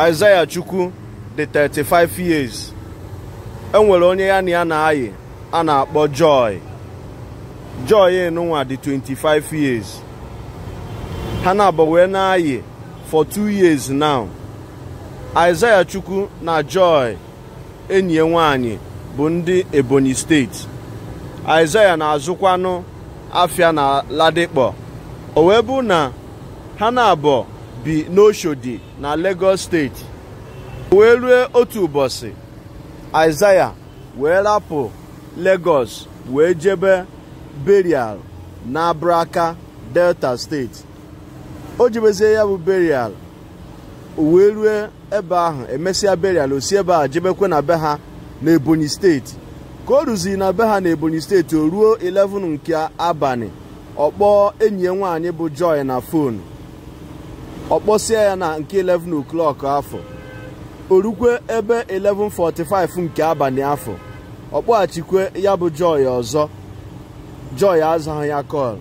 Isaiah Chukwu dị 35 years enwere onye ya na ya na-ayị a na-akpọ Joy Joy enunwa dị 25 years ha na-abụ wee na-ayị for two years now Isaiah Chukwu na Joy enyi nwanyị bụ ndị Ebonyi steeti Isaiah na-azụkwanụ afịa na ladikpo o wee bụ na ha na bi n'Oshodi na Lagos steeti wee rue otu ụbọchị Aịzaya wee rapụ Lagos wee jebe berial n'Abraka Delta steeti o jebezie ya bụ berial wee rue ebe ahụ emesịa berial osi ebe a jebekwe na be ha na Ebonyi steeti ka o ruziri na be ha na Ebonyi steeti o ruo 11 nke abalị ọkpọọ enyi ya nwaanyị bụ Joy na fonu ọ kpọsie ya na nke 11 o'clock afọ orukwe ebe 11:45 nke abalị afọ ọ kpọghachikwe ya bụ Joy ọzọ Joy azaghị ya kọl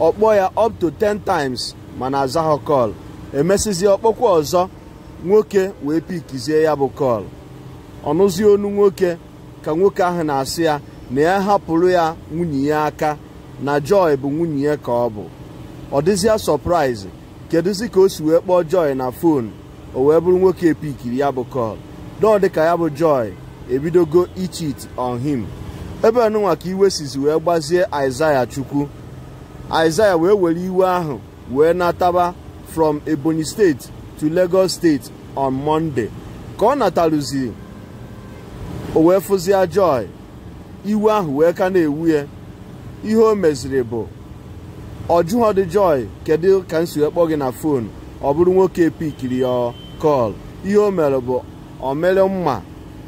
ọ kpọọ ya up to 10 times mana azaghị kọl emesizi ọkpọkwa ọzọ nwoke wee pikizie ya bụ kọl ọnụzie onu nwoke ka nwoke ahụ na-asị ya na ya hapụrụ ya nwunye ya aka na Joy bụ nwunye ya ka ọ bụ ọ dịzịa sọpraịzị kedụzi ka o si wee kpọọ Joy na fon o wee bụrụ nwoke epikiri ya bụ kọl dọọ ka ya bụ Joy ebidogo ichit on him ebe ọnụnwa ka iwe sizi wee gbazie Aịzaya Chukwu Aịzaya wee were iwe ahụ wee nataba from Ebonyi steeti to Lagos steeti on mọnde ka ọ na o wee fụzie Joy iwe ahụ wee ka na-ewu ya ihe o meziri bụ ọ dị joy kedu ka m si kpọọ gị na fon ọ bụrụ nwoke pikiri ya kọl ihe o mere bụ o mere mma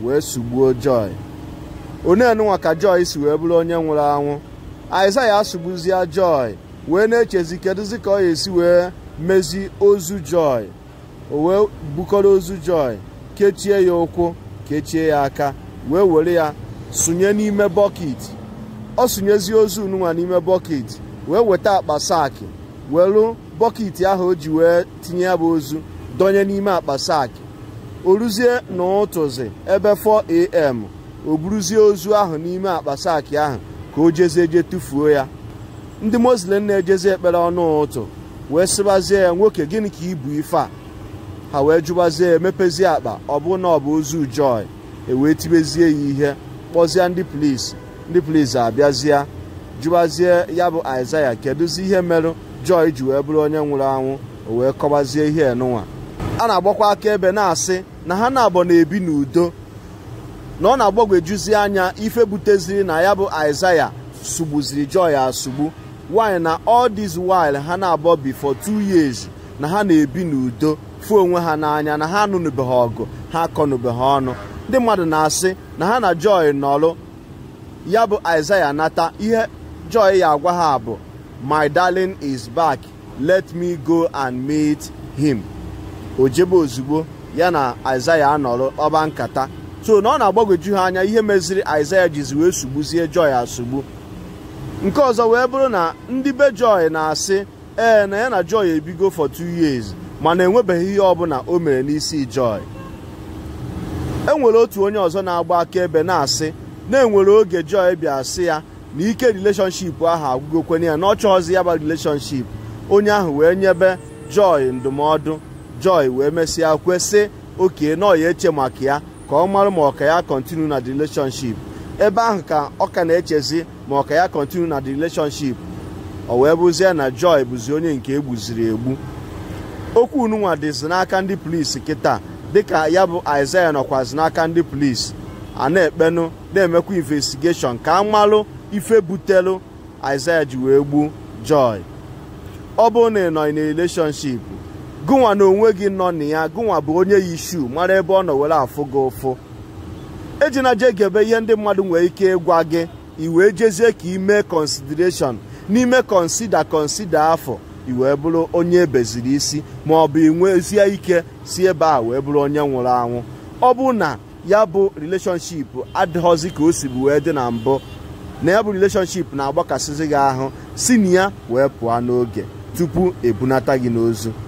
wee sugbuo joy onenụnwa ka joy si wee bụrụ onye nwụrụ anwụ ya sugbuzie joy wee na-echezi kedụzi ka ọ ga-esi wee mezi ozu joy o wee bukọrọ ozu joy kechie ya ụkwụ kechie ya aka wee were ya sụnye n'ime bọket ọ sụnyezie ozu nụnwa n'ime bọket wee weta akpa saakị welu bọket ahụ o ji wee tinye ya bụ ozu dọnye n'ime akpa saakị o ruzie n'ụtụzị ebe 4am o buruzie ozu ahụ n'ime akpa saakị ahụ ka o jezie je tụfuo ya ndị muslim na-ejezi ekpere ọnụ ụtụ wee sịbazie ya nwoke gịnị ka ibu ife a ha wee jụbazie emepezie akpa ọ bụ na ọ bụ ozu joy ewee tibezie ya ihe kpọzie ndị plis ndị plis abịazie jụbazie ya bụ aịzaya kedụzi ihe merụ jọị ji wee bụrụ onye nwụrụ anwụ o wee kọbazie ihe enụnwa a na-agbakwa aka ebe na-asị na ha na-abọ na-ebi n'udo na ọ na-agbagwejuzi anya ife buteziri na ya bụ aịzaya sugbuziri jọị asugbu nwanyị na ọ this while ha na-abọ before two years na ha na-ebi n'udo fụ onwe ha n'anya na ha anụnụbeghị ọgụ ha akọnụbeghị ọnụ ndị mmadụ na-asị na ha na jọị nọlụ ya bụ aịzaya nata ihe Joy ya agwa ha bụ my darling is back let me go and meet him o jebe ozugbo ya na isaiah anọrọ ọba nkata so na ọ na-agbagwoju ha anya ihe meziri isaiah jizi wee sugbuzie Joy asugbu nke ọzọ wee bụrụ na ndị be Joy na-asị ee na ya na Joy ebigo for two years mana enwebeghị ihe ọbụla o mere n'isi Joy enwere otu onye ọzọ na-agba akaebe na-asị na enwere oge Joy bịa sị ya na ike relationship ahụ agwụgokwenye ya na ọ ọzi ya bụ relationship onye ahụ wee nyebe Joy ndụmọdụ Joy wee mesịa kwesị oke na ọya eche maka ya ka ọ marụ ma ọka ya kontinu na the relationship ebe ahụ ka ọ ka na-echezi ma ọka ya kontinu na the relationship o wee bụzie na Joy bụzi onye nke egbuziri egbu okwu ununwa dịzi n'aka ndị polisi kịta dịka ya bụ Isaiah nọkwazi n'aka ndị polisi a na-ekpenụ na-emekwa investigeshọn ka amalụ ife butelu Aịzaya ji wee gbuo Joy ọ bụrụ na ị nọ na relationship gụnwa na onwe gị nọ na ya gụnwa bụ onye yi shu mara ebe ọ nọ were afụ gị ụfụ ejina je gebe ihe ndị mmadụ nwere ike ịgwa gị ị wee jezie ka ime consideration n'ime konsida konsida afọ ị wee bụrụ onye ebeziri isi ma ọ bụ inwezie ike si ebe a wee bụrụ onye nwụrụ anwụ ọ bụ na ya bụ relationship adịghọzi ka o si bụ wee dị na mbụ na ya bụ relationship na-agbakasịzi gị ahụ si na ya wee pụọ n'oge tupu ebunata gị n'ozu